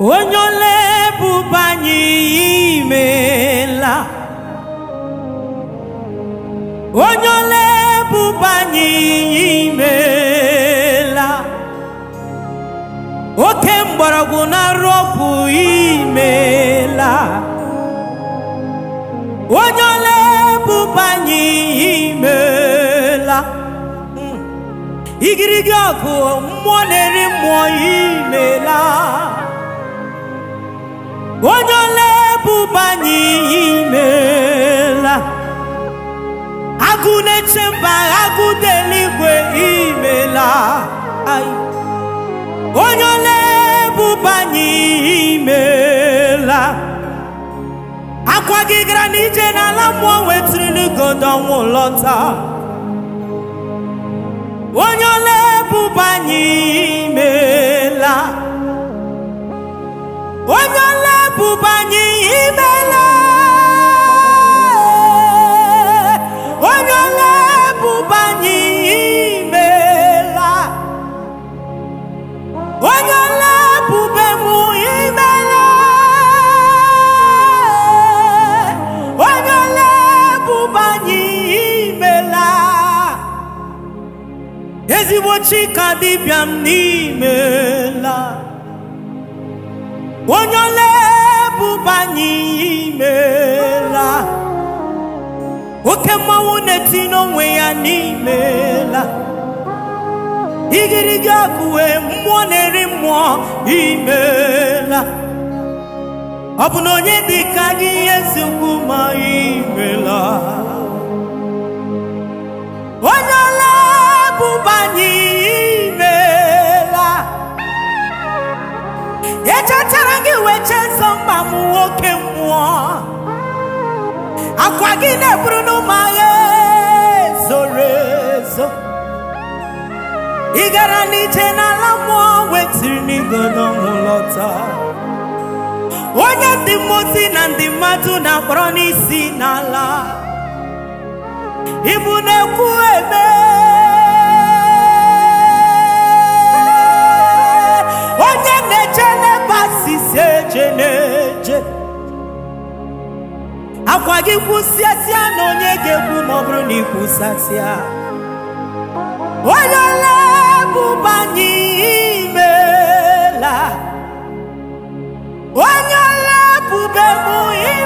onye ole bụba anyị imeela onye ole bụba anyị imeela oke mgbọrọgwụ na-arụ ọgwụ imeela onye ole bụba anyị imeela hmm. igirigi ọgụ mmụọ na-eri mmụọ imela mpaghakwute eluigwe imela onye ole ebube anyị imela akwa gị gara n'ije n'ala mmụọ n'igodo ọnwụ lọta onye ole ebube anyị imela onye ole imela ezigbo chika dịbịa m n'imela onye ole bụbanye imela oke mmanwụ na-eti n'onwe ya n'imela igirigi akụwe mmụọ na-eri mmụọ imela ọ bụ na onye dị ka gị ihe eziokwu ma echechara gị weche nsọ mma m nwoke mmụọ akwa gị na-eburu n'ụmụ agha zoro ezo ị gara n'ije n'ala mmụọ wetiri n'igo n'ụlọ lọta onye ndị mmozi na ndị mmadụ na-akpọrọ n'isi n'ala ibu na-ekwu eme akwa gị kwụsịasịa na onye ga-ekwu ma ọ bụrụ na ịkwụsasịa onye lebụbanye imela onye lebụbe m